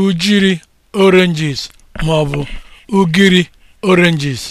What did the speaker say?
ujiri oranges ma ọ bụ ugiri oranges